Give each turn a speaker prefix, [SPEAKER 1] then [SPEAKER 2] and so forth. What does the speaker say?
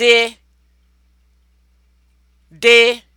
[SPEAKER 1] dị dị